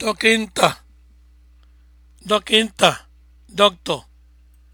dokinta dokinta doctor